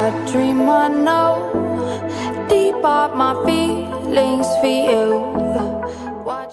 A dream I know, deep up my feelings for you. Watch.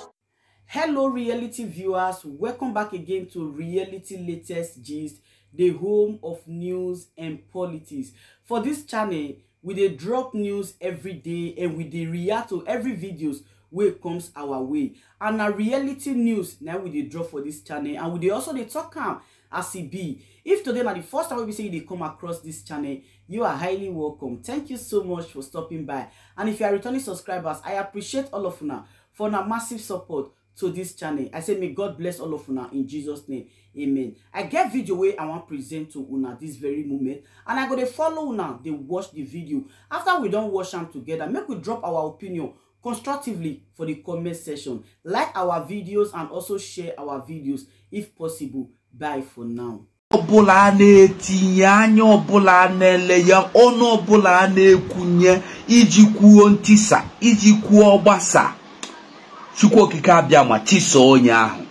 Hello, reality viewers. Welcome back again to Reality Latest Gist, the home of news and politics. For this channel, we dey drop news every day and we dey react to every videos wey comes our way and na reality news now we dey drop for this channel and we dey also dey talk am as e be If today na the first time we see you dey come across this channel, you are highly welcome. Thank you so much for stopping by. And if you are returning subscribers, I appreciate all of you now for una massive support to this channel. I say may God bless all of you now in Jesus name. Amen. I get video wey I wan present to una this very moment and I go to follow now. They watch the video. After we don't watch them together, make we drop our opinion constructively for the comment section. Like our videos and also share our videos if possible. Bye for now. ọbụla a na-etinye anya ọbụla a na-ele ya ọnụ ọbụla a na-ekwunye iji kwuo ntisa iji kwuo gbasa chukwu okike abịa ma tisa onye ahụ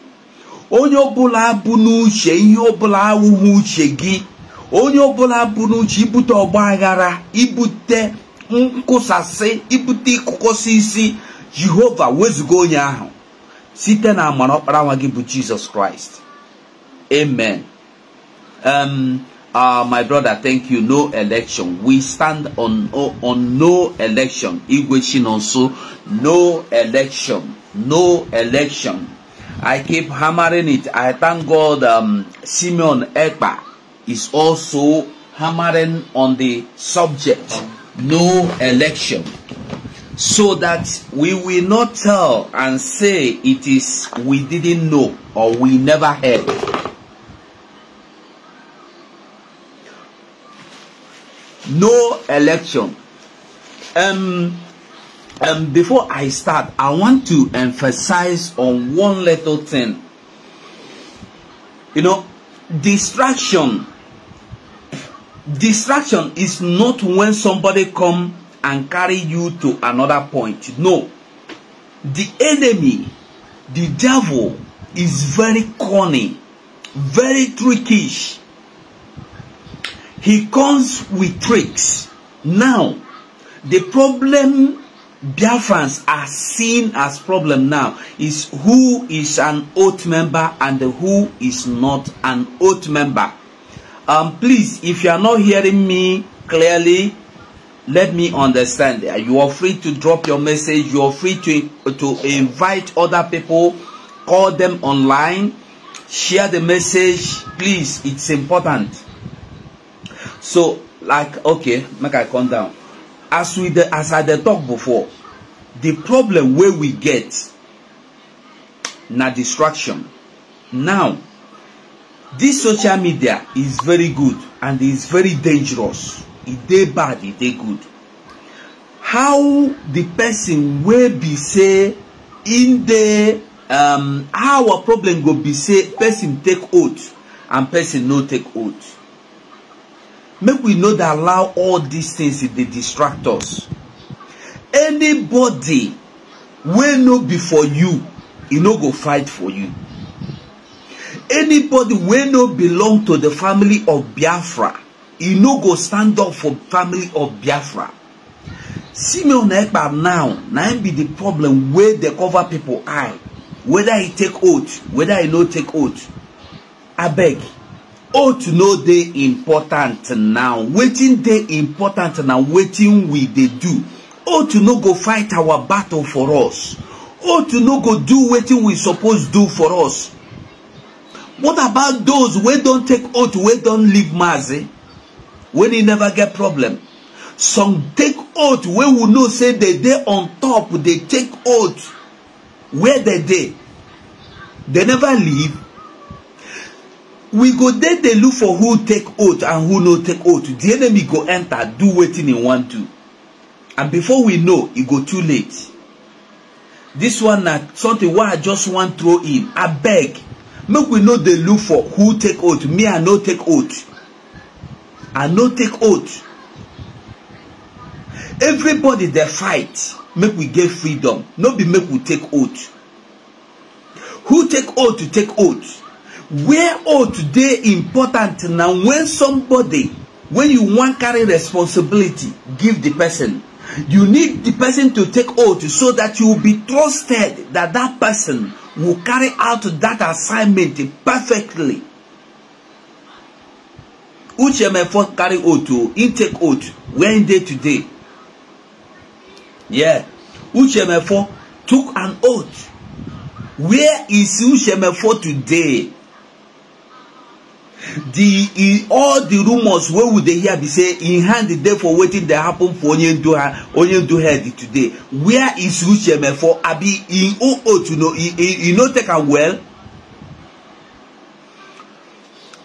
onye ọbụla bụ n'uche ihe ọbụla awụghị uche gị onye ọbụla bụ n'uche ibute ọgba aghara ibute nkwụsasị ibute ịkụkọsị isi jehova wezụga onye ahụ site na amara ọkpara nwa gị bụ jizọs kraịst amen Um, uh, my brother, thank you. No election. We stand on on, no election. Igwe also no election. No election. I keep hammering it. I thank God um, Simeon Ekpa is also hammering on the subject. No election. So that we will not tell and say it is we didn't know or we never heard. no election. Um, um, before I start, I want to emphasize on one little thing. You know, distraction. Distraction is not when somebody come and carry you to another point. No. The enemy, the devil, is very corny, very trickish. He comes with tricks. Now, the problem Biafrans are seen as problem now is who is an oath member and who is not an oath member. Um, please, if you are not hearing me clearly, let me understand. You are free to drop your message. You are free to, to invite other people, call them online, share the message. Please, it's important so like okay make i calm down as we dey as i the talk before the problem where we get na distraction now this social media is very good and is very dangerous It e dey bad it e dey good how the person will be say in the um, how a problem go be say person take oath and person no take oath make we no dey allow all these things dey distract us anybody wey no be for you e no go fight for you anybody wey no belong to the family of biafra e no go stand up for family of biafra simeon ekpa now na him be the problem wey dey cover people eye whether he take oath whether he no take oath abeg ought to know dey important now wetin dey important na wetin we dey do ought to no go fight our battle for us ought to no go do wetin we suppose do for us what about those wey don take oath wey don leave mazi wey e never get problem some take oath wey we know say dey dey on top dey take oath where dey dey dey never leave we go dey dey look for who take oath and who no take oath the enemy go enter do wetin e wan do and before we know e go too late this one na something wey i just wan throw in abeg make we no dey look for who take oath me i no take oath i no take oath everybody dey fight make we get freedom no be make we take oath who take oath to take oath where oath dey important na when somebody when you wan carry responsibility give the person you need the person to take oath so that you be trusted that that person will carry out that assignment perfectly uche mefo carry oath o him take oath when day dey today yeah uche mefo took an oath where is uche mefo today the e all the rumours wey we dey hear be say in e hand dey for wetin dey happen for onyendu onyendu head today where is ucheme for abi im O O to know e, e, e no take am well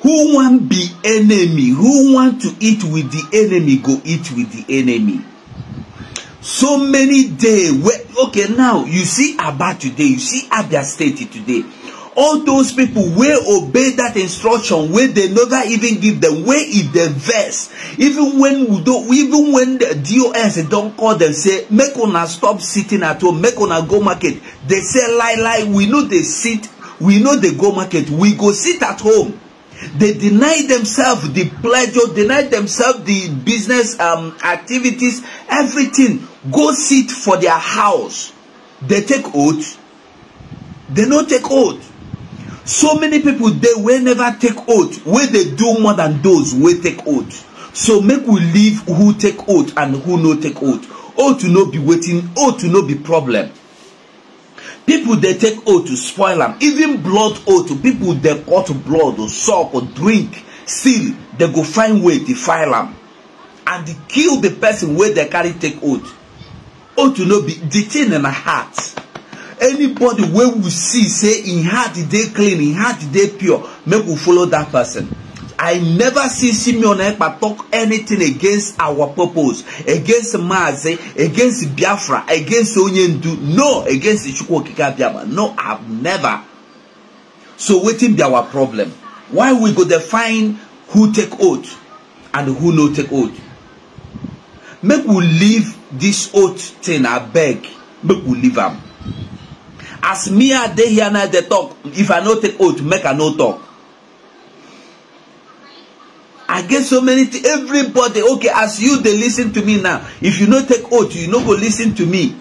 who wan be enemy who want to eat with the enemy go eat with the enemy so many day wey okay now you see aba today you see abia state today all those people wey obey that instruction wey dey never even give them? wey e dey vex even when we udo even when the dos don call them, say make una stop sitting at home make una go market They say lie lie we no dey sit we no dey go market we go sit at home they deny themselves the pleasure deny themselves the business um, activities everything go sit for their house they take oath they no take oath So many people they will never take oath. Where they do more than those will take oath. So make we leave who take oath and who no take oath. Oath to no be waiting, oath to no be problem. People they take oath to spoil them. Even blood oath, people they cut blood or suck or drink, still they go find way to file them. And kill the person where they carry take oath. Oath to no be the in the heart anybody wey we see say im heart dey clean im heart dey pure make we follow that person I never see Simeon Ekpa talk anything against our purpose, against Maze, against Biafra, against Onyendu, no, against Chukwu Okike No, I've never. So wetin be our problem? Why we go define who take oath and who no take oath? Make we leave this oath thing, abeg. Make we leave am as me i dey here now dey talk if i no take oath make i no talk i get so many things everybody okay as you dey lis ten to me now if you no take oath you no go lis ten to me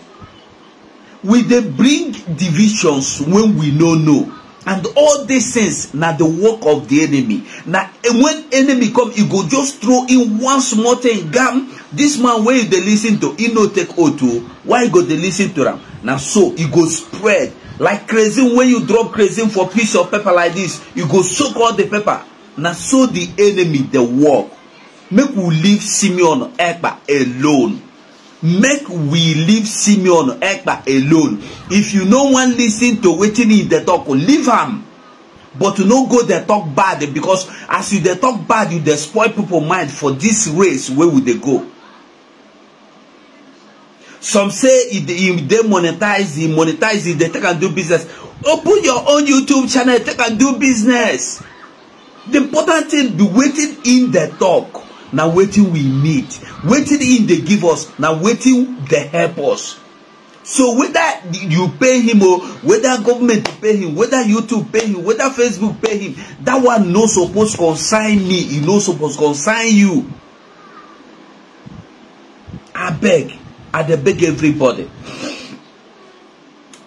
we dey bring divisions when we no know and all these things na the work of the enemy na eh, when enemy come e go just throw in one small thing gam this man wey you dey lis ten to e no take oath o oh. why you go dey lis ten to am na so e go spread like crazy. when you drop crazy for piece of paper like this you go soak all the paper na so the enemy dey work make we leave simeon ekpa alone make we leave simeon ekpa alone if you no wan lis ten to wetin he dey talk leave am but no go dey talk bad because as you dey talk bad you dey spoil people mind for this race wey we dey go some say e dey monetize e monetize e dey take am do business open your own youtube channel take am do business the important thing be wetin im dey talk na wetin we need wetin him dey give us na wetin dey help us so whether you pay him o whether government pay him whether youtube pay him whether facebook pay him that one no suppose concern me e no suppose concern you abeg i dey beg everybody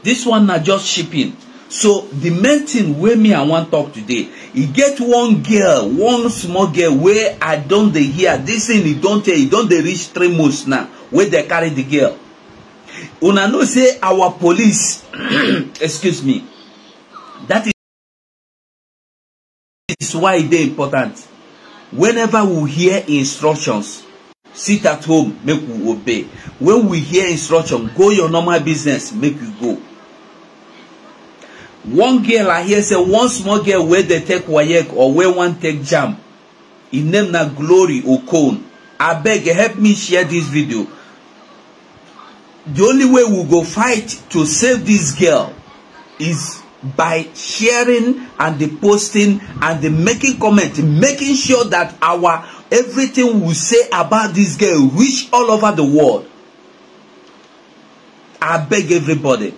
this one na just shipping so the main thing wey me i wan talk today e get one girl one small girl wey i don dey hear this thing e don tell e don dey reach three months now wey dey carry the girl una know say our police excuse me that is why e dey important whenever we hear instructions sit at home make we obey when we hear instruction go your normal business make you go one girl i hear say one small girl wey dey take waec or wey wan take jam e name na glory okon abeg help me share dis video the only way we go fight to save dis girl is by sharing and the posting and the making comment making sure that our everything we say about dis girl reach all over the world abeg everybody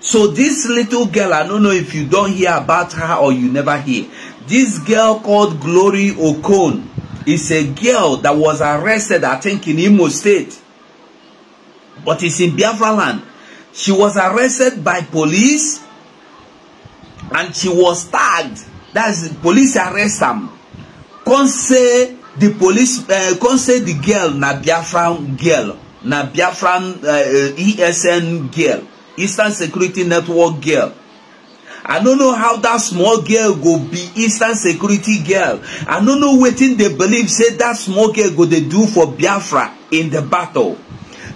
So this little girl, I don't know if you don't hear about her or you never hear. This girl called Glory Okon is a girl that was arrested, I think, in Imo State. But it's in Biafra land. She was arrested by police and she was tagged. That's police arrest them. Come say the police, uh, eh, come say the girl na Biafran girl, na Biafran uh, eh, ESN eh, e girl eastern security network girl i no know how that small girl go be eastern security girl i no know wetin dey believe say that small girl go dey do for biafra in the battle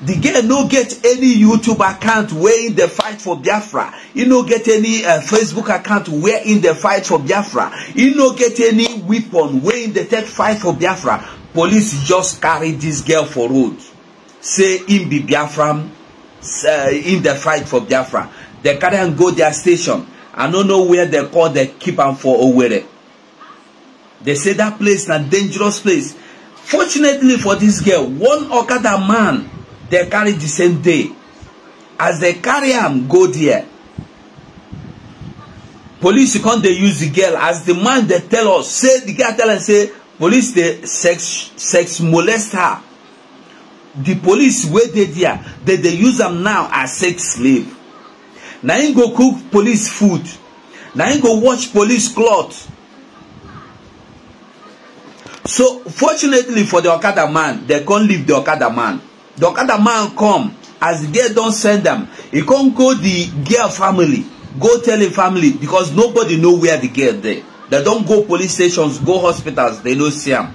The girl no get any youtube account wey in dey fight for biafra e no get any eh, facebook account where in dey fight for biafra e no get any weapon wey in dey take fight for biafra police just carry this girl for road say im be biafra uh, in the fight for Biafra. They carry go their station. I don't know where they call the keep am for Owerri. They say that place a dangerous place. Fortunately for this girl, one or other man they carry the same day. As they carry am go there, police come dey use the girl as the man They tell us say the girl tell am say police dey sex sex molest her The police wey dey there dem dey use am now as sex slave na im go cook police food na im go wash police cloth so fortunately for the okada man dem come leave the okada man the okada man come as the girl don send am e come go the girl family go tell im family because nobody know where the girl dey dem don go police stations go hospitals dem no see am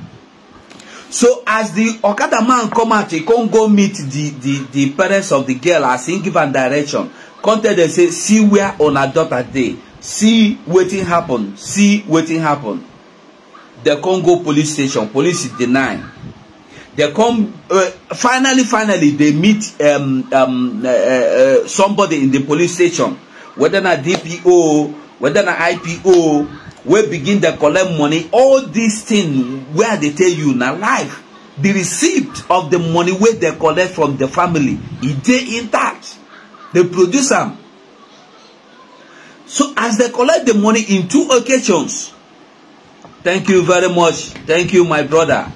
So as the Okada man come out, he come go meet the, the, the parents of the girl as he give am direction. Come tell them say, see where una daughter dey. See wetin happen. See wetin happen. They come go police station. Police deny. They come uh, finally, finally they meet um, um, uh, uh, uh somebody in the police station. Whether na DPO, whether na IPO, wey begin dey collect money all dis thing wey i dey tell you na life the receipt of the money wey dey collect from the family e dey intact dey produce am so as dey collect the money in two occasions thank you very much thank you my brother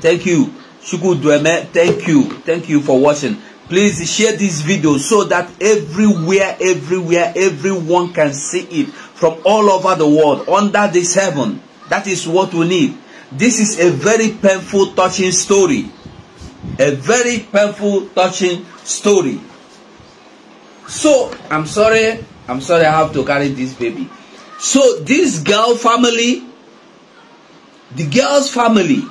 thank you chukwudueme thank you thank you for watching please share this video so that everywhere everywhere everyone can see it from all over the world under this heaven. That is what we need. This is a very painful, touching story. A very painful, touching story. So, I'm sorry. I'm sorry I have to carry this baby. So, this girl family, the girl's family,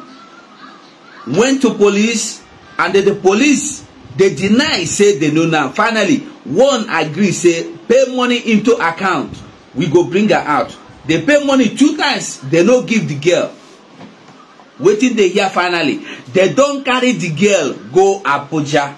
went to police and then the police, they deny, say they know now. Finally, one agree, say, pay money into account we go bring her out They pay money two times They no give the girl wetin dey hear finally dey don carry the girl go abuja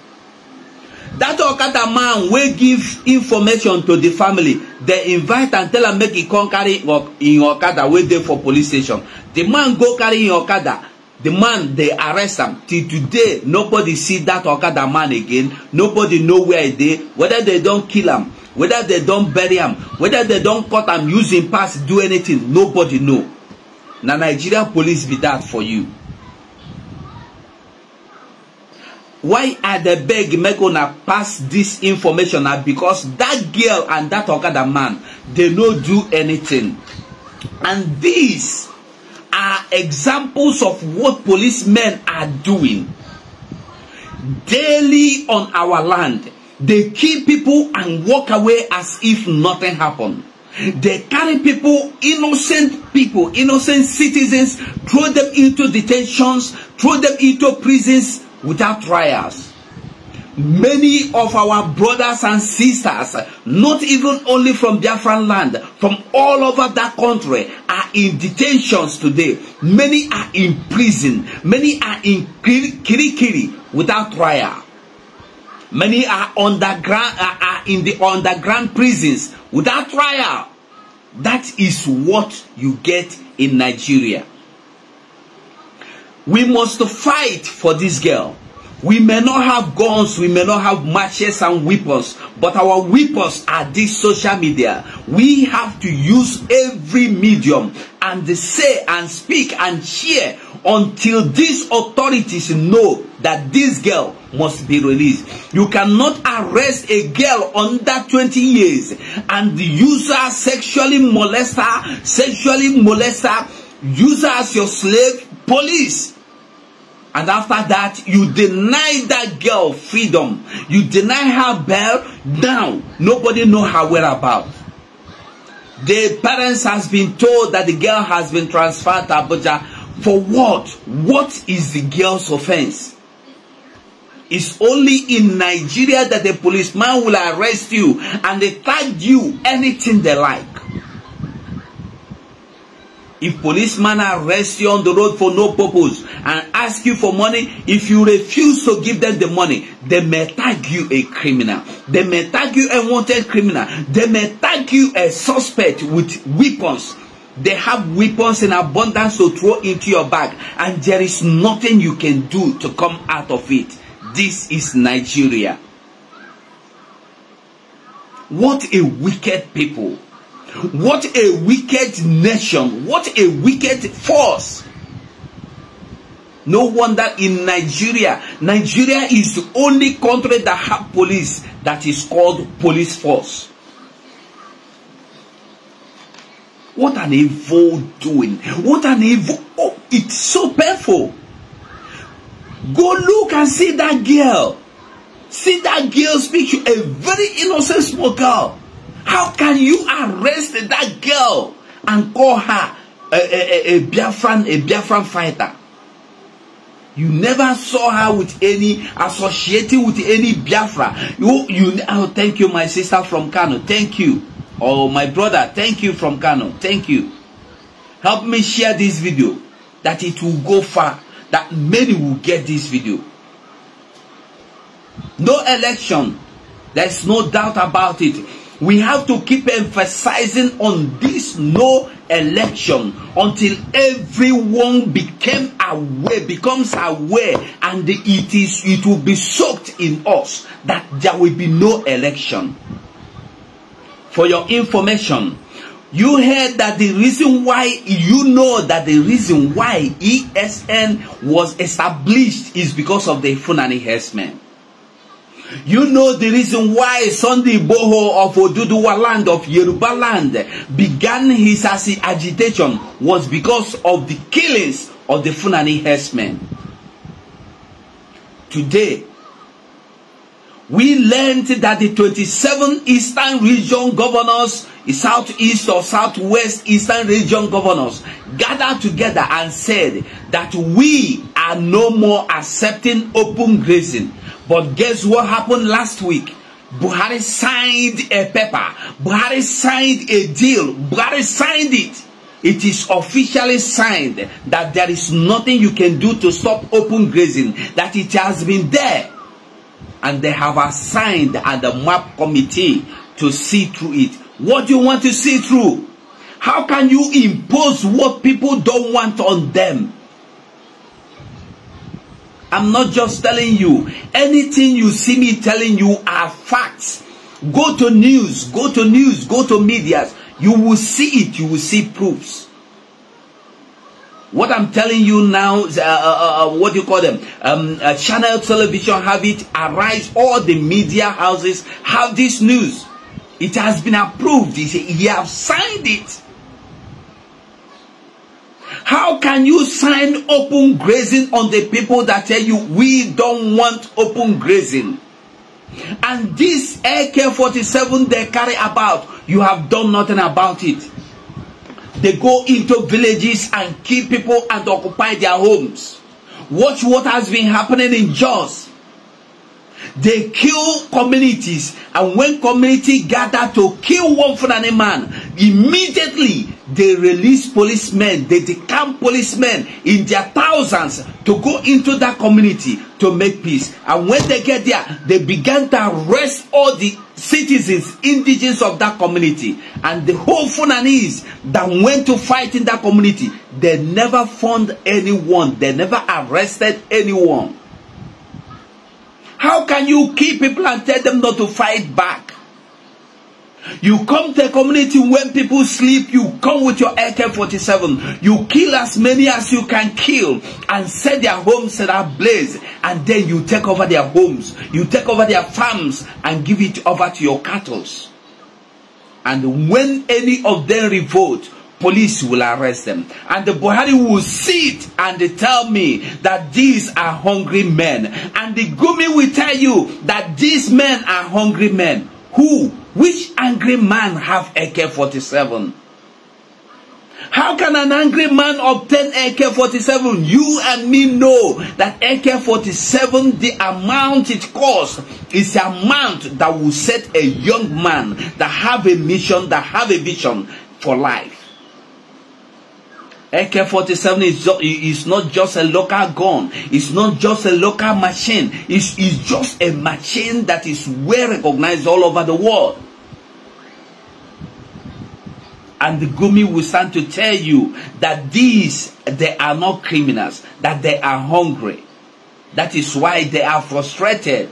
that okada man wey give information to the family dey invite am tell am make e come carry im okada wey dey for police station the man go carry im okada the man dey arrest am till today nobody see that okada man again nobody know where e dey whether they don kill am whether they don bury am whether they don cut am use im pass do anything nobody know na nigeria police be that for you why i dey beg make una pass this information na because that girl and that okada man dey no do anything and these are examples of what policemen are doing daily on our land They kill people and walk away as if nothing happened. They carry people, innocent people, innocent citizens, throw them into detentions, throw them into prisons without trials. Many of our brothers and sisters, not even only from Biafran land, from all over that country, are in detentions today. Many are in prison. Many are in kirikiri without trial. Many are underground are, are in the underground prisons without trial. That is what you get in Nigeria. We must fight for this girl. We may not have guns, we may not have matches and weapons, but our weapons are this social media. We have to use every medium and say and speak and share until these authorities know that this girl must be released. You cannot arrest a girl under 20 years and use her sexually molest her, sexually molest her, use her as your slave, police And after that, you deny that girl freedom. You deny her bail. Now, nobody know her whereabouts. The parents has been told that the girl has been transferred to Abuja. For what? What is the girl's offense? It's only in Nigeria that the policeman will arrest you and they tag you anything they like. If policemen arrest you on the road for no purpose and ask you for money, if you refuse to give them the money, they may tag you a criminal. They may tag you a wanted criminal. They may tag you a suspect with weapons. They have weapons in abundance to throw into your bag, and there is nothing you can do to come out of it. This is Nigeria. What a wicked people. What a wicked nation. What a wicked force. No wonder in Nigeria, Nigeria is the only country that have police that is called police force. What an evil doing. What an evil. Oh, it's so painful. Go look and see that girl. See that girl's picture. A very innocent small girl. How can you arrest that girl and call her a, a, a, a Biafran, a Biafran fighter? You never saw her with any associating with any Biafra. You, you. Oh, thank you, my sister from Kano. Thank you. Oh, my brother. Thank you from Kano. Thank you. Help me share this video, that it will go far, that many will get this video. No election. There's no doubt about it. We have to keep emphasizing on this no election until everyone became aware, becomes aware, and it is it will be soaked in us that there will be no election. For your information, you heard that the reason why you know that the reason why ESN was established is because of the funani herdsmen. You know the reason why Sunday Boho of Oduduwa land, of Yoruba land, began his agitation was because of the killings of the Funani herdsmen. Today, we learned that the 27 Eastern Region governors, Southeast or Southwest Eastern Region governors gathered together and said that we are no more accepting open grazing. But guess what happened last week? Buhari signed a paper. Buhari signed a deal. Buhari signed it. It is officially signed that there is nothing you can do to stop open grazing, that it has been there and they have assigned at the map committee to see through it. What do you want to see through? How can you impose what people don't want on them? I'm not just telling you. Anything you see me telling you are facts. Go to news, go to news, go to medias. You will see it, you will see proofs. What I'm telling you now, uh, uh, uh, uh, what you call them? Um, uh, channel television have it, arise, all the media houses have this news. It has been approved. He said, you have signed it. How can you sign open grazing on the people that tell you, we don't want open grazing? And this AK-47 they carry about, you have done nothing about it. They go into villages and kill people and occupy their homes. Watch what has been happening in Jaws. They kill communities, and when community gather to kill one for any man, immediately they release policemen, they decamp policemen in their thousands to go into that community to make peace. And when they get there, they began to arrest all the citizens, indigenous of that community. And the whole Fulanese that went to fight in that community, they never found anyone. They never arrested anyone. How can you keep people and tell them not to fight back? You come to a community when people sleep, you come with your AK-47. You kill as many as you can kill and set their homes in ablaze. And then you take over their homes. You take over their farms and give it over to your cattle. And when any of them revolt, police will arrest them. And the Buhari will sit and tell me that these are hungry men. And the Gumi will tell you that these men are hungry men. Who Which angry man have AK-47? How can an angry man obtain AK-47? You and me know that AK-47, the amount it costs, is the amount that will set a young man that have a mission, that have a vision for life. AK-47 is, is not just a local gun. It's not just a local machine. It's, it's just a machine that is well recognized all over the world. and the Gumi will stand to tell you that these, they are not criminals, that they are hungry. That is why they are frustrated.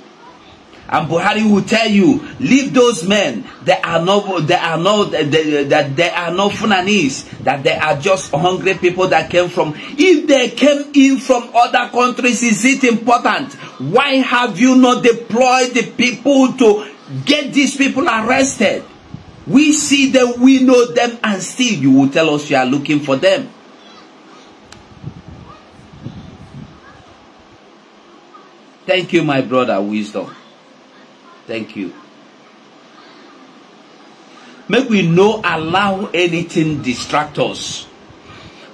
And Buhari will tell you, leave those men. They are not, they are not, that they, they, they are not Funanis. That they are just hungry people that came from. If they came in from other countries, is it important? Why have you not deployed the people to get these people arrested? We see them, we know them, and still you will tell us you are looking for them. Thank you, my brother, wisdom. Thank you. Make we no allow anything distract us.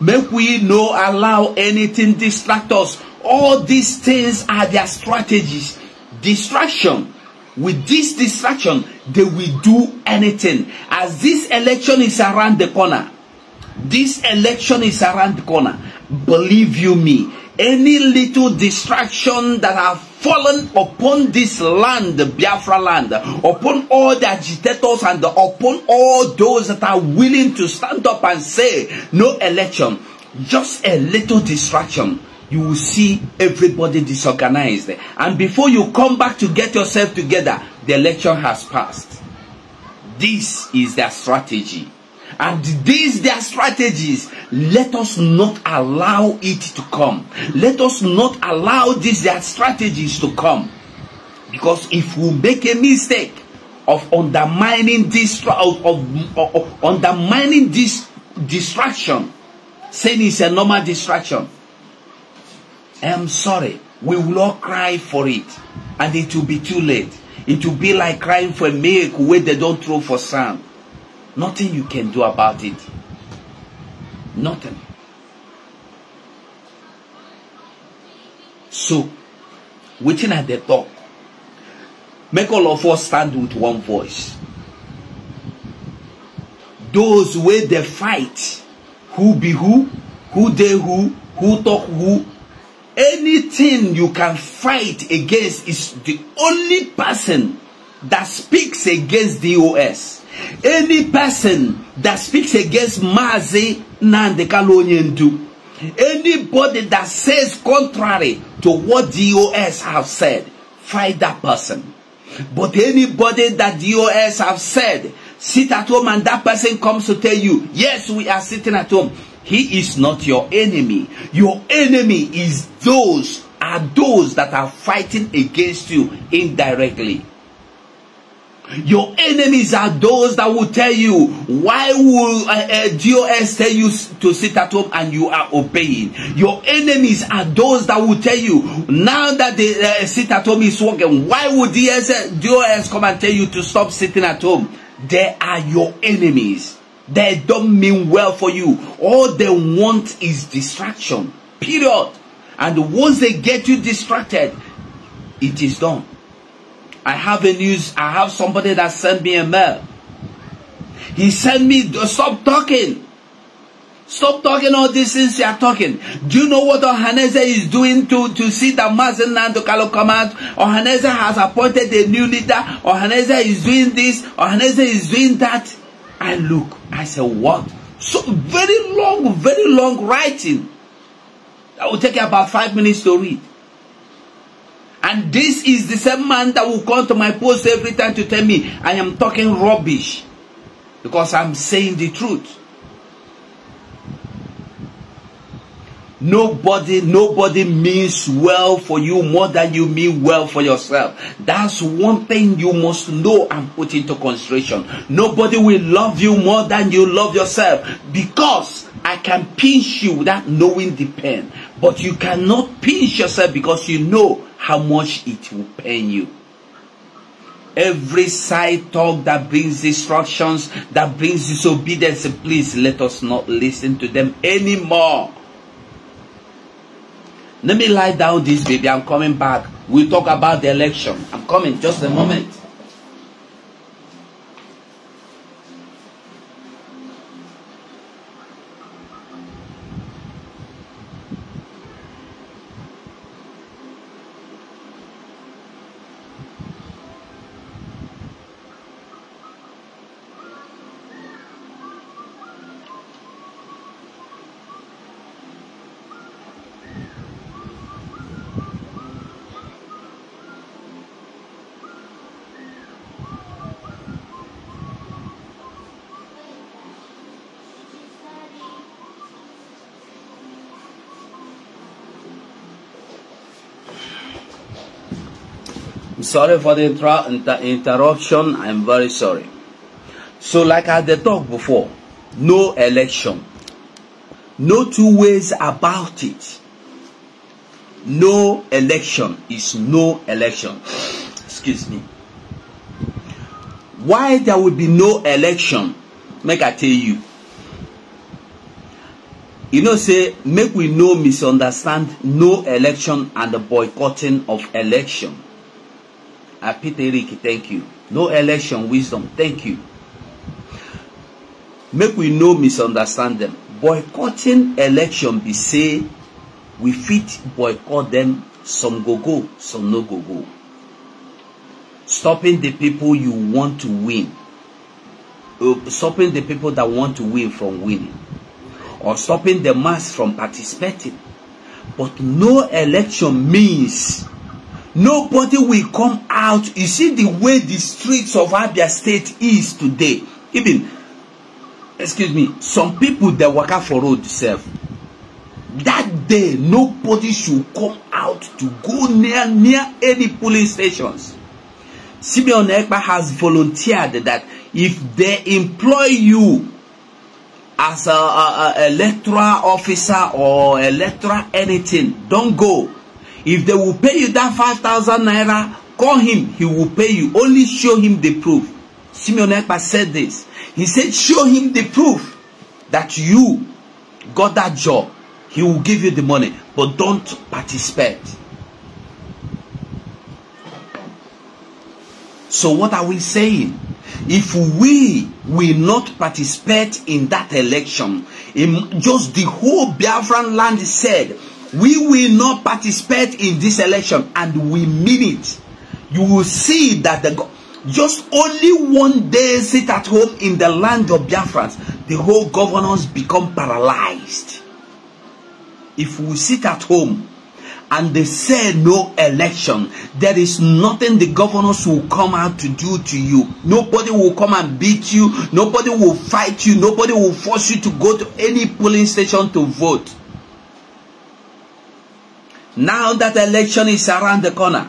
Make we no allow anything distract us. All these things are their strategies. Distraction with this distraction, they will do anything. As this election is around the corner, this election is around the corner. Believe you me, any little distraction that have fallen upon this land, Biafra land, upon all the agitators and upon all those that are willing to stand up and say, no election, just a little distraction you will see everybody disorganized. And before you come back to get yourself together, the election has passed. This is their strategy. And these their strategies, let us not allow it to come. Let us not allow these their strategies to come. Because if we make a mistake of undermining this of, of, of undermining this distraction, saying it's a normal distraction, I'm sorry. We will all cry for it. And it will be too late. It will be like crying for a where they don't throw for sand. Nothing you can do about it. Nothing. So, waiting at the top, make all of us stand with one voice. Those where they fight, who be who, who they who, who talk who, anything you can fight against is the only person that speaks against DOS. Any person that speaks against Mazi Nandekalo Ndu, Anybody that says contrary to what DOS have said, fight that person. But anybody that DOS have said, sit at home and that person comes to tell you, yes, we are sitting at home. He is not your enemy. Your enemy is those are those that are fighting against you indirectly. Your enemies are those that will tell you, why will uh, uh, DOS tell you to sit at home and you are obeying? Your enemies are those that will tell you, now that the uh, sit at home is working, why would DOS, DOS come and tell you to stop sitting at home? They are your enemies. They don't mean well for you. All they want is distraction. Period. And once they get you distracted, it is done. I have a news. I have somebody that sent me a mail. He sent me, stop talking. Stop talking all these things you are talking. Do you know what Ohaneze is doing to, to see that Mazenland Kalo come Ohaneze has appointed a new leader. Ohaneze is doing this. Ohaneze is doing that. I look, I said, what? So very long, very long writing. That will take about five minutes to read. And this is the same man that will come to my post every time to tell me I am talking rubbish. Because I'm saying the truth. Nobody, nobody means well for you more than you mean well for yourself. That's one thing you must know and put into consideration. Nobody will love you more than you love yourself because I can pinch you without knowing the pain. But you cannot pinch yourself because you know how much it will pain you. Every side talk that brings destructions, that brings disobedience, please let us not listen to them anymore. Let me lie down this baby. I'm coming back. we talk about the election. I'm coming just a moment. Sorry for the inter inter interruption. I'm very sorry. So like I had talked before, no election. No two ways about it. No election is no election. Excuse me. Why there will be no election? Make I tell you. You know, say, make we no misunderstand no election and the boycotting of election. Apiteriki, thank you. No election wisdom, thank you. Make we no misunderstand them. Boycotting election be say we fit boycott them. Some go go, some no go go. Stopping the people you want to win. Uh, stopping the people that want to win from winning. Or stopping the mass from participating. But no election means Nobody will come out. You see the way the streets of Abia State is today. Even, excuse me, some people they waka for road self. That day, nobody should come out to go near near any police stations. Simeon Ekpa has volunteered that if they employ you as a, a, a electoral officer or electoral anything, don't go. If they will pay you that five thousand naira, call him, he will pay you. Only show him the proof. Simeon Ekpa said this. He said, show him the proof that you got that job. He will give you the money, but don't participate. So what are we saying? If we will not participate in that election, in just the whole Biafran land said, We will not participate in this election and we mean it. You will see that the just only one day sit at home in the land of Biafrans, the whole governance become paralyzed. If we sit at home and they say no election, there is nothing the governors will come out to do to you. Nobody will come and beat you. Nobody will fight you. Nobody will force you to go to any polling station to vote. Now that election is around the corner,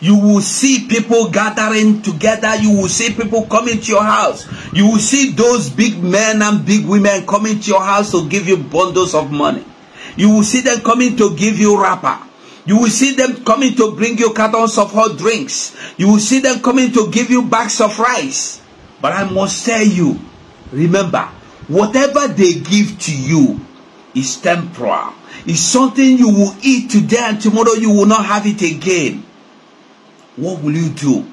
you will see people gathering together. You will see people coming to your house. You will see those big men and big women coming to your house to give you bundles of money. You will see them coming to give you wrapper. You will see them coming to bring you cartons of hot drinks. You will see them coming to give you bags of rice. But I must tell you, remember, whatever they give to you is temporal. Is something you will eat today and tomorrow you will not have it again. What will you do?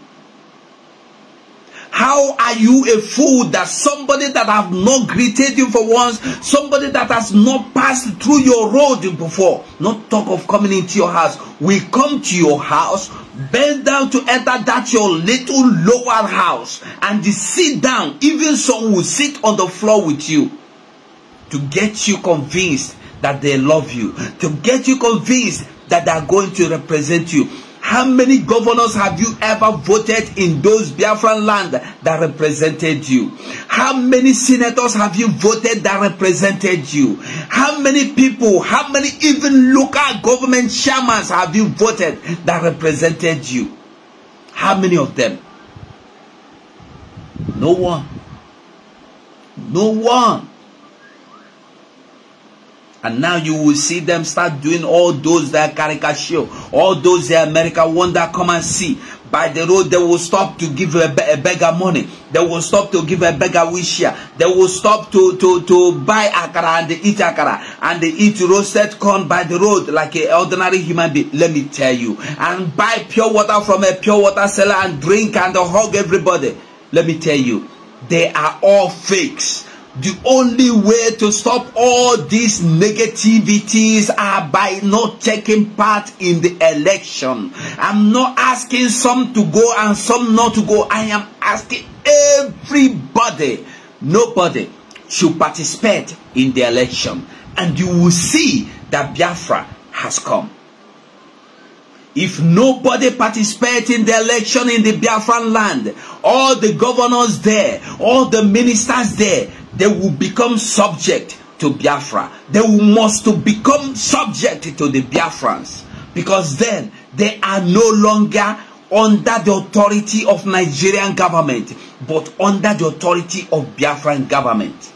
How are you a fool that somebody that have not greeted you for once, somebody that has not passed through your road before, not talk of coming into your house, will come to your house, bend down to enter that your little lower house, and sit down. Even some will sit on the floor with you to get you convinced that they love you, to get you convinced that they are going to represent you. How many governors have you ever voted in those Biafran land that represented you? How many senators have you voted that represented you? How many people, how many even local government shamans have you voted that represented you? How many of them? No one. No one. And now you will see them start doing all those that caricature, all those that America wonder come and see. By the road, they will stop to give a, a beggar money. They will stop to give a beggar wish here. They will stop to, to, to buy akara and they eat akara. And they eat roasted corn by the road like an ordinary human being. Let me tell you. And buy pure water from a pure water seller and drink and hug everybody. Let me tell you. They are all fakes. The only way to stop all these negativities are by not taking part in the election. I'm not asking some to go and some not to go. I am asking everybody, nobody should participate in the election. And you will see that Biafra has come. If nobody participates in the election in the Biafran land, all the governors there, all the ministers there, They will become subject to Biafra. They will must to become subject to the Biafrans because then they are no longer under the authority of Nigerian government but under the authority of Biafran government.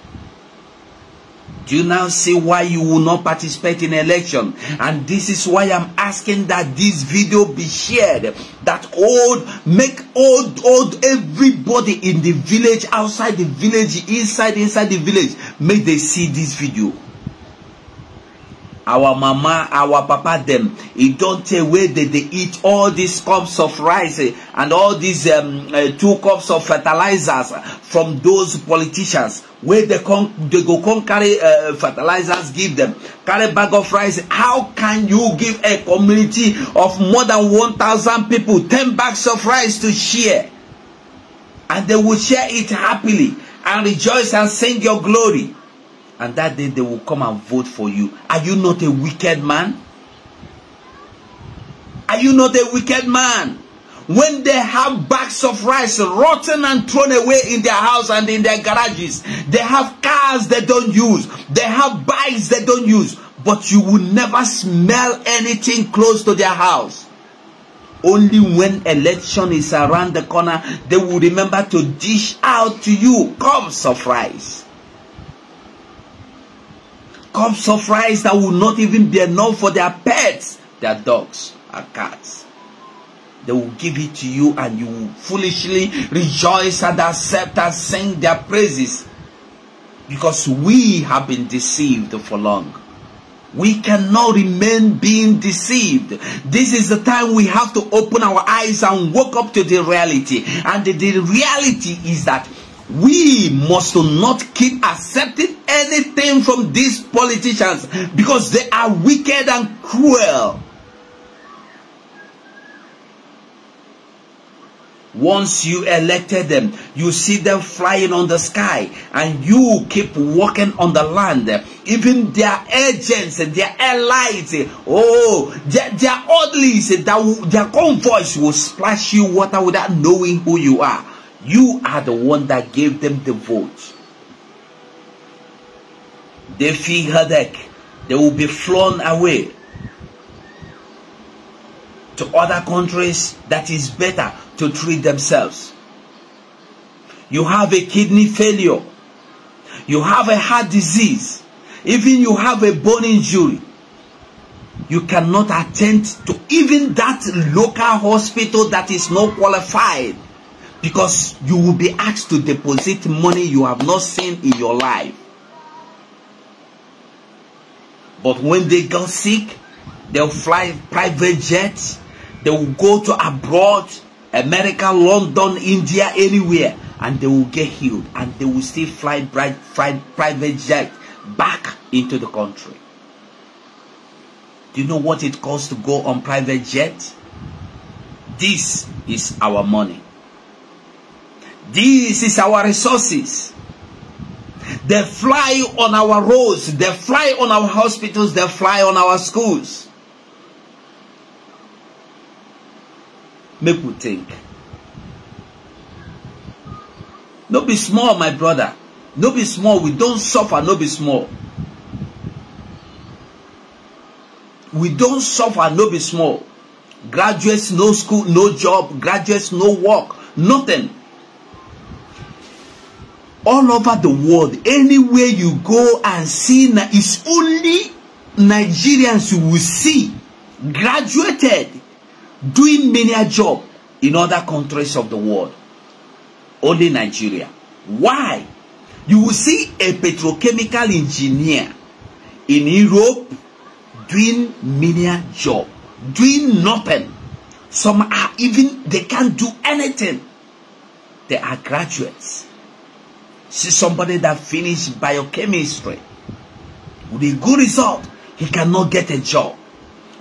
Do you now see why you will not participate in election? And this is why I'm asking that this video be shared. That old, make old, old everybody in the village, outside the village, inside, inside the village, may they see this video our mama our papa dem e don tey wey dey dey eat all these cups of rice and all these um, uh, two cups of fertilizers from those politicians wey dey go come carry uh, fertilizers give dem carry bag of rice how can you give a community of more than one thousand people ten bags of rice to share and they will share it happily and rejoice and sing your glory. and that day they will come and vote for you. Are you not a wicked man? Are you not a wicked man? When they have bags of rice rotten and thrown away in their house and in their garages, they have cars they don't use, they have bikes they don't use, but you will never smell anything close to their house. Only when election is around the corner, they will remember to dish out to you cups of rice cups of rice that will not even be enough for their pets, their dogs and cats. They will give it to you and you will foolishly rejoice and accept and sing their praises. Because we have been deceived for long. We cannot remain being deceived. This is the time we have to open our eyes and wake up to the reality. And the, the reality is that we must not keep accepting anything from these politicians because they are wicked and cruel. Once you elected them, you see them flying on the sky and you keep walking on the land. Even their agents and their allies, oh, their, their oddlies, that their convoys will splash you water without knowing who you are. You are the one that gave them the vote. They Defi Hadek, they will be flown away to other countries that is better to treat themselves. You have a kidney failure. You have a heart disease. Even you have a bone injury. You cannot attend to even that local hospital that is not qualified because you will be asked to deposit money you have not seen in your life. But when they got sick, they'll fly private jets. They will go to abroad, America, London, India, anywhere, and they will get healed. And they will still fly, bright, fly private jet back into the country. Do you know what it costs to go on private jet? This is our money. This is our resources. They fly on our roads. They fly on our hospitals. They fly on our schools. Make we think. No be small, my brother. No be small. We don't suffer. No be small. We don't suffer. No be small. Graduates, no school, no job. Graduates, no work. Nothing. all over the world, anywhere you go and see, it's only Nigerians you will see graduated doing many a job in other countries of the world. Only Nigeria. Why? You will see a petrochemical engineer in Europe doing many a job, doing nothing. Some are even, they can't do anything. They are graduates. See somebody that finished biochemistry with a good result, he cannot get a job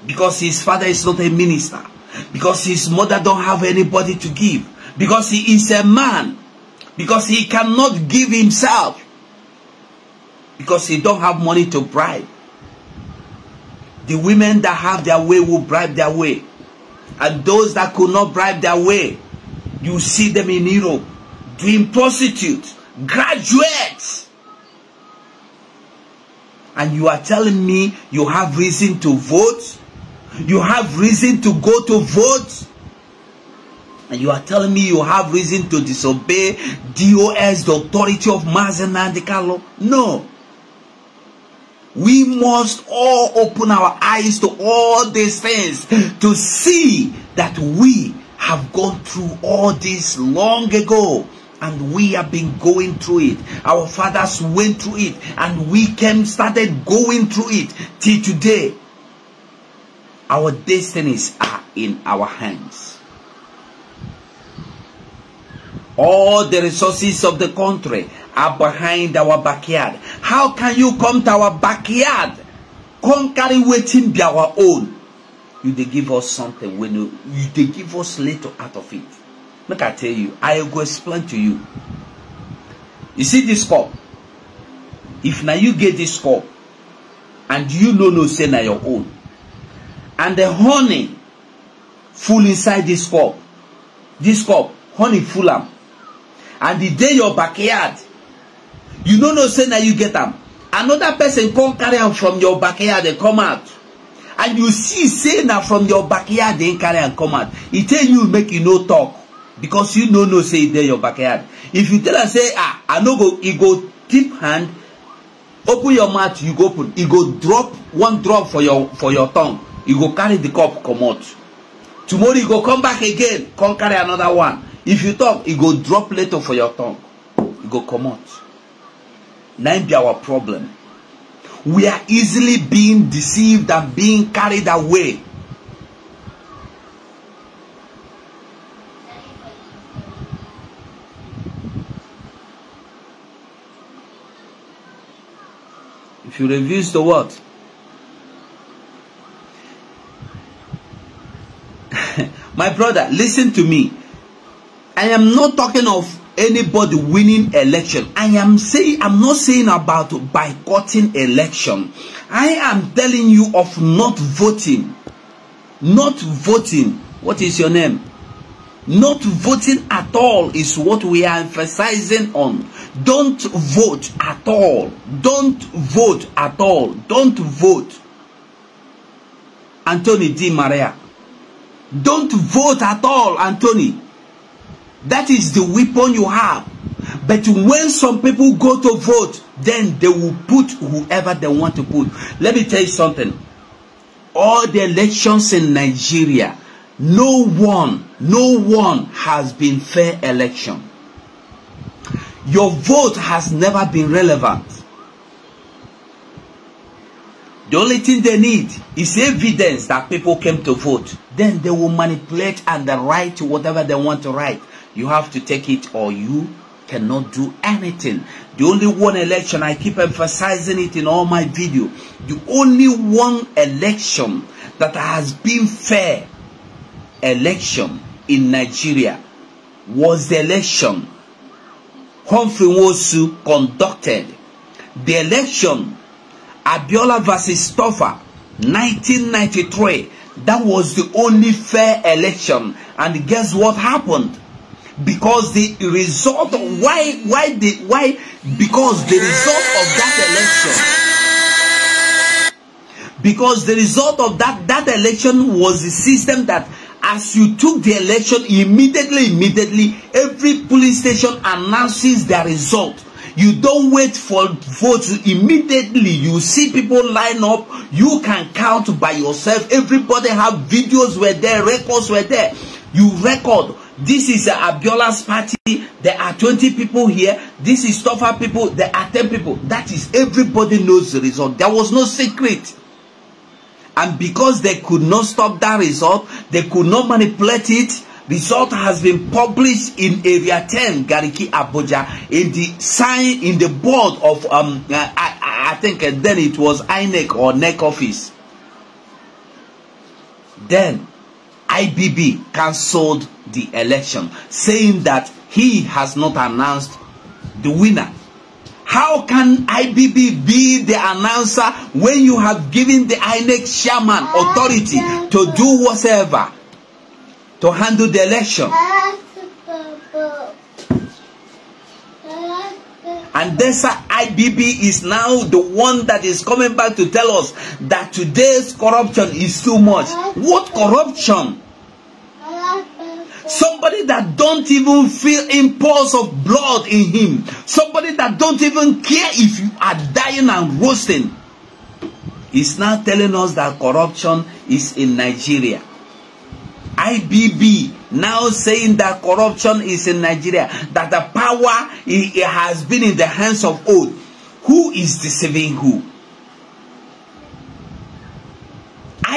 because his father is not a minister, because his mother don't have anybody to give, because he is a man, because he cannot give himself, because he don't have money to bribe. The women that have their way will bribe their way. And those that could not bribe their way, you see them in Europe doing prostitute, graduates. And you are telling me you have reason to vote? You have reason to go to vote? And you are telling me you have reason to disobey DOS, the authority of Mazana and Carlo? No. We must all open our eyes to all these things to see that we have gone through all this long ago and we have been going through it. Our fathers went through it and we came started going through it till today. Our destinies are in our hands. All the resources of the country are behind our backyard. How can you come to our backyard? Conquering waiting be our own. You they give us something when you, you they give us little out of it. make i tell you i go explain to you you see this cup if na you get this cup and you no know say na your own and the honey full inside this cup this cup honey full am and e dey your backyard you no know say na you get am another person come carry am from your backyard and come out and you see say na from your backyard dem carry am come out e tell you make you no talk because you no know say e dey your backyard if you tell am say ah i no go e go tip hand open your mouth you go open e go drop one drop for your for your tongue e go carry the cup comot tomorrow e go come back again come carry another one if you talk e go drop later for your tongue e go comot na im be our problem we are easily being deceived and being carried away to reduce the what? My brother, listen to me. I am not talking of anybody winning election. I am saying I'm not saying about boycotting election. I am telling you of not voting. Not voting. What is your name? Not voting at all is what we are emphasizing on. Don't vote at all. Don't vote at all. Don't vote. Anthony Di Maria. Don't vote at all, Anthony. That is the weapon you have. But when some people go to vote, then they will put whoever they want to put. Let me tell you something. All the elections in Nigeria, No one, no one has been fair election. Your vote has never been relevant. The only thing they need is evidence that people came to vote. Then they will manipulate and they write whatever they want to write. You have to take it or you cannot do anything. The only one election, I keep emphasizing it in all my video, the only one election that has been fair election in Nigeria was the election Humphrey Nwosu conducted. The election Abiola versus Toffa 1993 that was the only fair election and guess what happened because the result of why why the why because the result of that election because the result of that that election was the system that as you took the election immediately immediately every police station announces their result you don't wait for votes immediately you see people line up you can count by yourself everybody have videos were there records were there you record this is uh, abiola's party there are 20 people here this is tougher people there are 10 people that is everybody knows the result there was no secret And because they could not stop that result, they could not manipulate it. Result has been published in Area 10, Gariki, Abuja, in the sign in the board of um, uh, I, I think uh, then it was INEC or NEC office. Then IBB cancelled the election, saying that he has not announced the winner How can IBB be the announcer when you have given the INEC chairman authority to do whatever, to handle the election? And this IBB is now the one that is coming back to tell us that today's corruption is too much. What corruption? Somebody that don't even feel impulse of blood in him. Somebody that don't even care if you are dying and roasting. is now telling us that corruption is in Nigeria. IBB now saying that corruption is in Nigeria, that the power it, it has been in the hands of old. Who is deceiving who?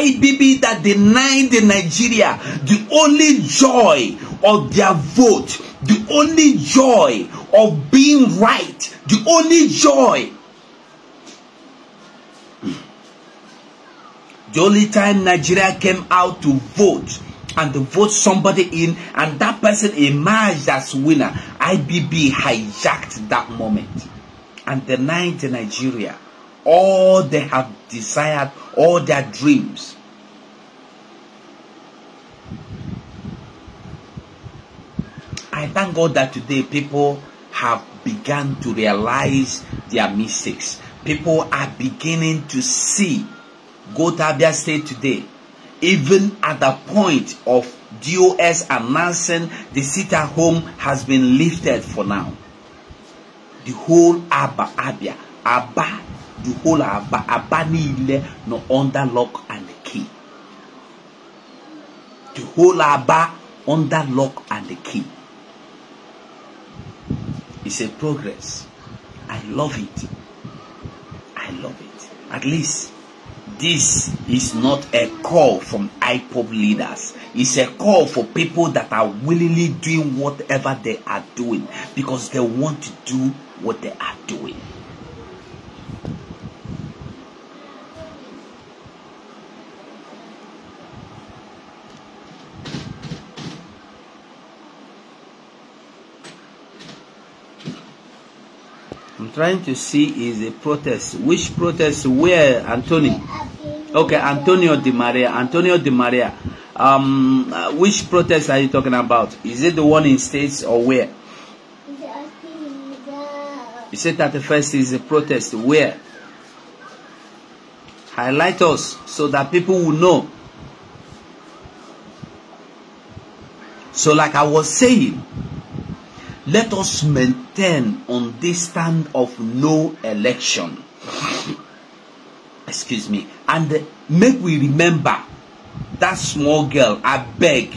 IBB that denied in Nigeria the only joy of their vote, the only joy of being right, the only joy. The only time Nigeria came out to vote and to vote somebody in and that person emerged as winner, IBB hijacked that moment and denied Nigeria all they have desired, all their dreams. I thank God that today people have begun to realize their mistakes. People are beginning to see. Gotabia State today. Even at the point of DOS announcing the sit home has been lifted for now. The whole Abba Abia, Abba to hold our aba niile nọ under lock and key hold whole ba under lock and key it's a progress i love it i love it at least this is not a call from IPOP leaders. It's a call for people that are willingly doing whatever they are doing because they want to do what they are doing. trying to see is a protest. Which protest? Where, Antonio? Okay, Antonio Di Maria. Antonio Di Maria. Um, which protest are you talking about? Is it the one in states or where? You said that the first is a protest. Where? Highlight us so that people will know. So, like I was saying, Let us maintain on this stand of no election. Excuse me. And make we remember that small girl, I beg,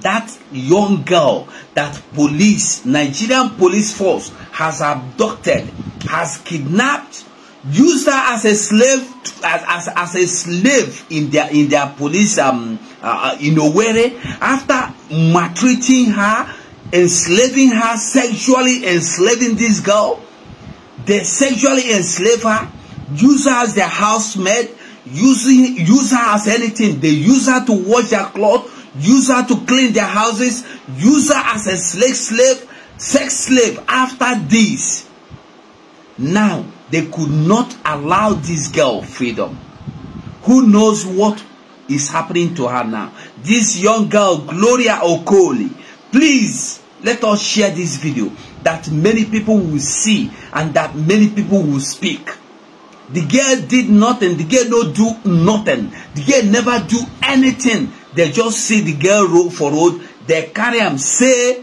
that young girl that police, Nigerian police force has abducted, has kidnapped, used her as a slave, to, as, as, as a slave in their, in their police, um, uh, uh in Owerri, after maltreating her, enslaving her, sexually enslaving this girl. They sexually enslave her, use her as their housemaid, using, use her as anything. They use her to wash their clothes, use her to clean their houses, use her as a slave, slave, sex slave after this. Now, they could not allow this girl freedom. Who knows what is happening to her now? This young girl, Gloria Okoli, please let us share this video that many people will see and that many people will speak the girl did nothing the girl no do nothing the girl never do anything they just see the girl road for road they carry am say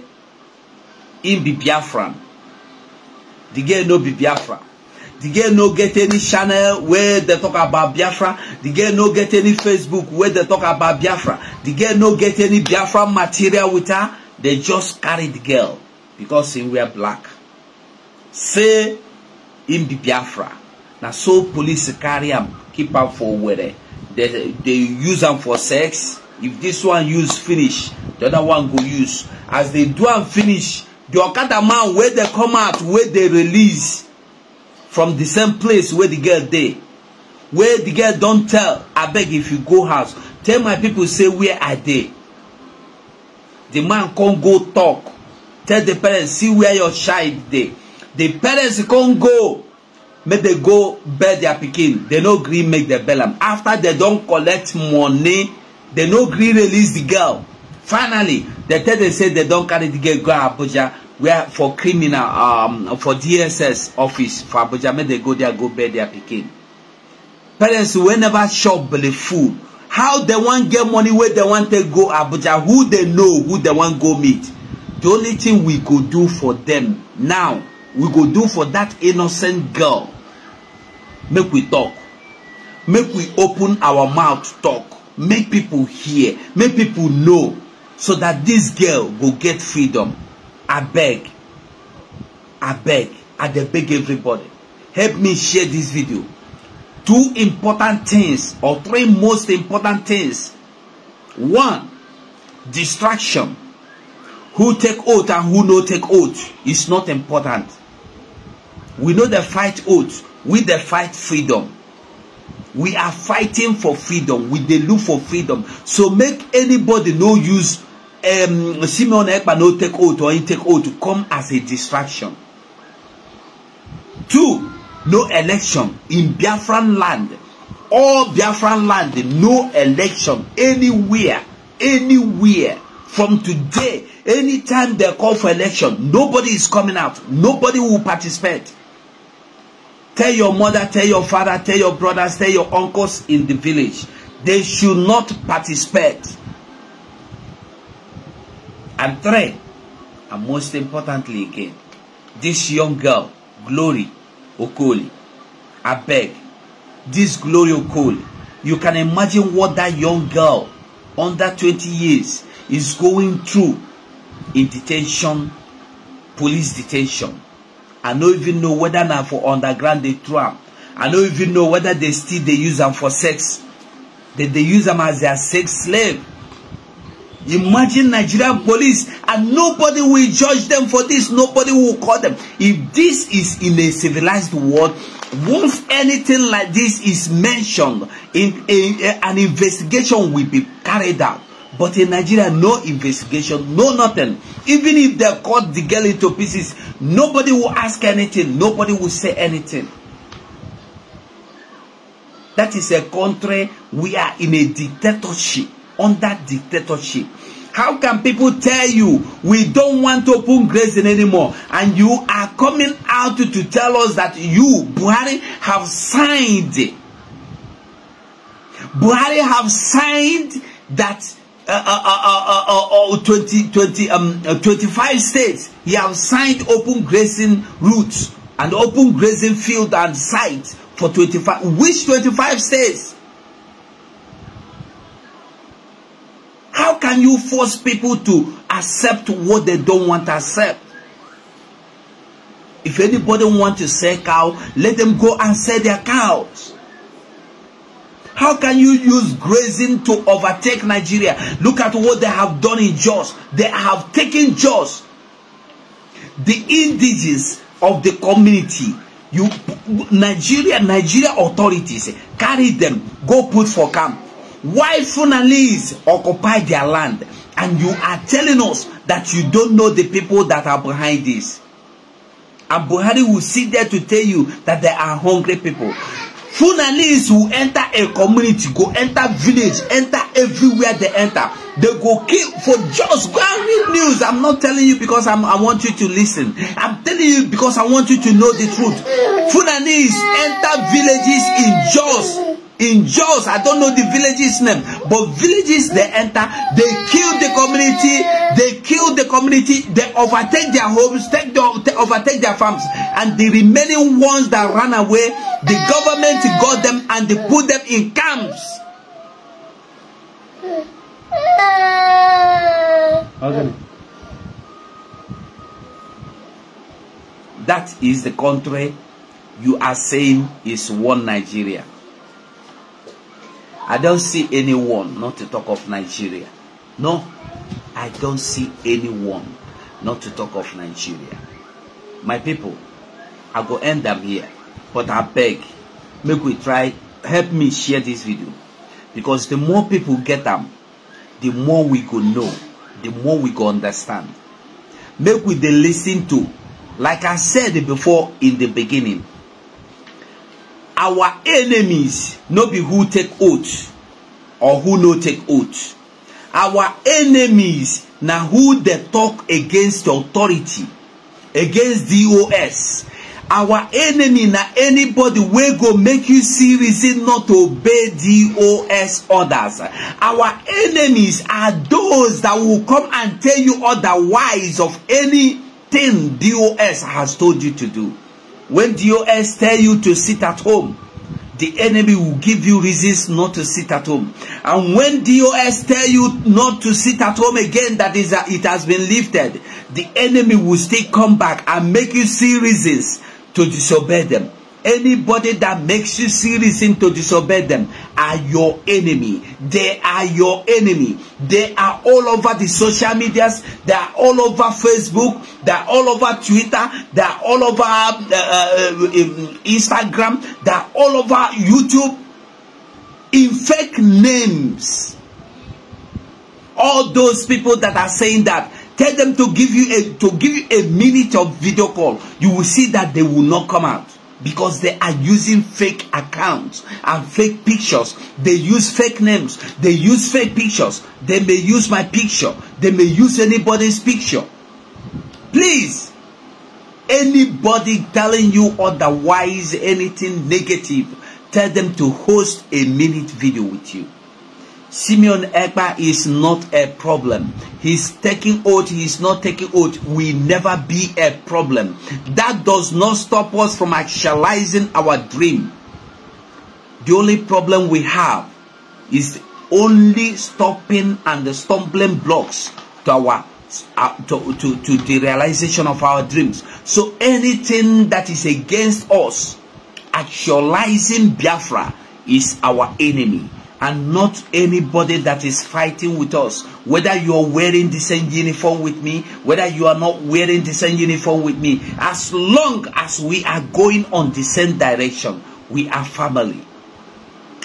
im be biafran the girl no be biafra the girl no get any channel wey dey talk about biafra the girl no get any facebook wey dey talk about biafra the girl no get any biafra material with her they just carry the girl because she wear black say him be biafra na so police carry am keep am for were they they use am for sex if this one use finish the other one go use as they do am finish the okada man wey dey come out wey dey release from the same place wey the girl dey wey the girl don tell abeg if you go house tell my people say where i dey the man con go talk tell the parents see where your child dey the parents con go make they go bail their pikin they no gree make them bail am after they don collect money they no gree release the girl finally they tell them say they don carry the girl go abuja where for criminal um, for dss office for abuja make they go there go bail their pikin parents wey never chop belle full how dem wan get money wey dem wan take go abuja who dey know who dem wan go meet the only thing we go do for dem now we go do for dat innocent girl make we talk make we open our mouth talk make people hear make people know so that dis girl go get freedom abeg abeg i dey beg everybody help me share dis video two important things or three most important things. One, distraction. Who take oath and who no take oath is not important. We know the fight oath. We the fight freedom. We are fighting for freedom. We they look for freedom. So make anybody no use um, Simeon Ekpa no take oath or he take oath to come as a distraction. Two, no election in Biafran land. All Biafran land, no election anywhere, anywhere. From today, anytime they call for election, nobody is coming out. Nobody will participate. Tell your mother, tell your father, tell your brothers, tell your uncles in the village. They should not participate. And three, and most importantly again, this young girl, Glory, Okoli, beg, this Glory Okoli, you can imagine what that young girl under 20 years is going through in detention, police detention. I no even know whether now for underground they throw am. I no even know whether they still they use them for sex. That They dey use them as their sex slave. Imagine Nigerian police and nobody will judge them for this. Nobody will call them. If this is in a civilized world, once anything like this is mentioned, in, in, in eh, an investigation will be carried out. But in Nigeria, no investigation, no nothing. Even if they cut the girl into pieces, nobody will ask anything. Nobody will say anything. That is a country we are in a dictatorship under dictatorship. How can people tell you we don't want to open grazing anymore? And you are coming out to tell us that you, Buhari, have signed. Buhari have signed that uh, uh, uh, 20, uh, 20, uh, uh, um, 25 states he have signed open grazing routes and open grazing field and sites for 25. Which 25 states? How can you force people to accept what they don't want to accept? If anybody want to sell cow, let them go and sell their cows. How can you use grazing to overtake Nigeria? Look at what they have done in Jos. They have taken Jos. The indigenous of the community. You, Nigeria, Nigeria authorities, carry them, go put for camp. Why Funalese occupy their land and you are telling us that you don't know the people that are behind this? And Buhari will sit there to tell you that there are hungry people. Funalese will enter a community, go enter village, enter everywhere they enter. They go kill for just go news. I'm not telling you because I'm, I want you to listen. I'm telling you because I want you to know the truth. Funalese enter villages in Jos in Jos, I don't know the village's name, but villages they enter, they kill the community, they kill the community, they overtake their homes, take their, they overtake their farms, and the remaining ones that ran away, the government got them and they put them in camps. Okay. That is the country you are saying is one Nigeria. I don't see anyone, not to talk of Nigeria. No, I don't see anyone, not to talk of Nigeria. My people, I go end them here, but I beg, make we try, help me share this video. Because the more people get them, the more we go know, the more we go understand. Make we dey listen to, like I said before in the beginning, our enemies no be who take oath or who no take oath our enemies na who dey talk against authority against dos our enemy na anybody wey go make you see reason not to obey dos orders our enemies are those that will come and tell you otherwise of anything dos has told you to do When DOS tell you to sit at home, the enemy will give you reasons not to sit at home. And when DOS tell you not to sit at home again, that is, a, uh, it has been lifted, the enemy will still come back and make you see reasons to disobey them. Anybody that makes you serious into disobey them are your enemy. They are your enemy. They are all over the social medias. They are all over Facebook. They are all over Twitter. They are all over um, uh, uh um, Instagram. They are all over YouTube. In fake names. All those people that are saying that tell them to give you a to give you a minute of video call you will see that they will not come out because they are using fake accounts and fake pictures. They use fake names. They use fake pictures. They may use my picture. They may use anybody's picture. Please, anybody telling you otherwise anything negative, tell them to host a minute video with you. Simeon Ekpa is not a problem. He's taking oath, he's not taking oath, will never be a problem. That does not stop us from actualizing our dream. The only problem we have is only stopping and the stumbling blocks to our uh, to, to, to the realization of our dreams. So anything that is against us actualizing Biafra is our enemy and not anybody that is fighting with us. Whether you are wearing the same uniform with me, whether you are not wearing the same uniform with me, as long as we are going on the same direction, we are family.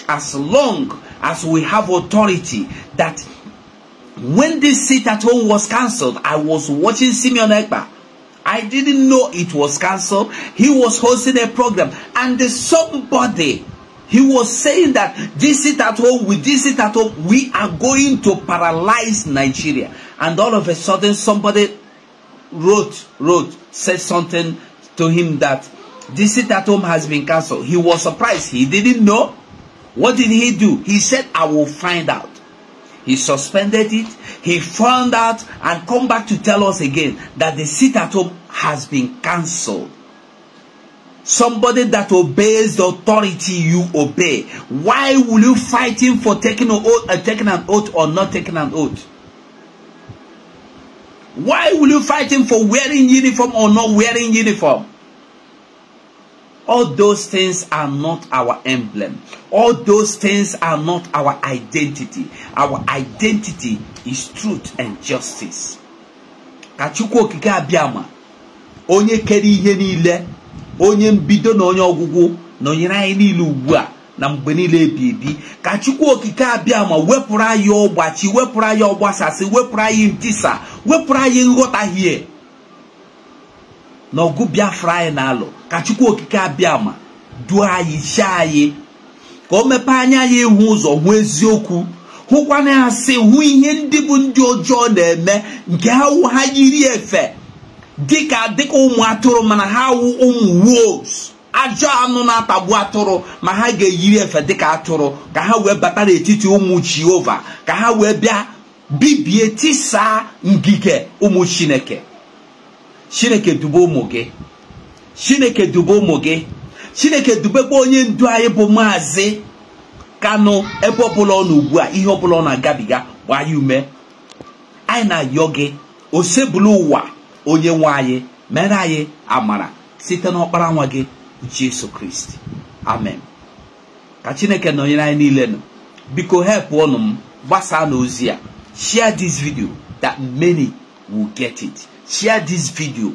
As long as we have authority that when this seat at home was cancelled, I was watching Simeon Ekba. I didn't know it was cancelled. He was hosting a program and somebody He was saying that this it at home, with this it at home, we are going to paralyze Nigeria. And all of a sudden, somebody wrote, wrote, said something to him that this it at home has been cancelled. He was surprised. He didn't know. What did he do? He said, I will find out. He suspended it. He found out and come back to tell us again that the sit at home has been cancelled somebody that obeys the authority you obey. Why will you fight him for taking, an oath, uh, taking an oath or not taking an oath? Why will you fight him for wearing uniform or not wearing uniform? All those things are not our emblem. All those things are not our identity. Our identity is truth and justice. Ka Chukwu okike abịa onye kere ihe niile onye mbido na onye ọgwụgwụ nọnyere anyị niile ugbu a na mgbe niile ebi ebi ka chukwu okike abịa ma wepụrụ anyị ọgbachi wepụrụ anyị ọgbasasị wepụrụ anyị ntisa wepụrụ anyị nghọtahie na ọgụ biafra anyị na-alụ ka chukwu okike abịa ma duo anyị chi anyị ka o mepee anya anyị ịhụ ụzọ hụ eziokwu hụkwana asị hụ ihe ndị bụ ndị ọjọọ na-eme nke ha ha yiri efe dịka dịka ụmụ atụrụ mana ha wụ ụmụ wolves ajọ anụ na-atagbu atụrụ ma ha ga-eyiri efe dịka atụrụ ka ha wee bata n'etiti ụmụ jehova ka ha wee bịa bibie tisaa ngige ụmụ chineke chineke dube ụmụ gị chineke dube ụmụ gị chineke dubekwa onye ndu anyị bụ maazị kanụ ebe ọbụla ọ n'ugbu a ihe ọbụla ọ na-agabiga gbaa ya ume anyị na-ayọ gị osebulu ụwa onye nwe anyị mere anyị amara site n'ọkpara nwa gị Jesu Kristi amen ka Chineke nọnyere anyị niile nọ biko help ọnụ m gbasaa n'ozi a share this video that many will get it share this video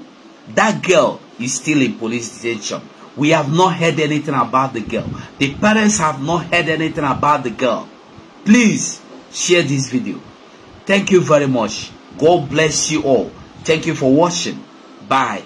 that girl is still in police detention we have not heard anything about the girl the parents have not heard anything about the girl please share this video thank you very much god bless you all Thank you for watching. Bye.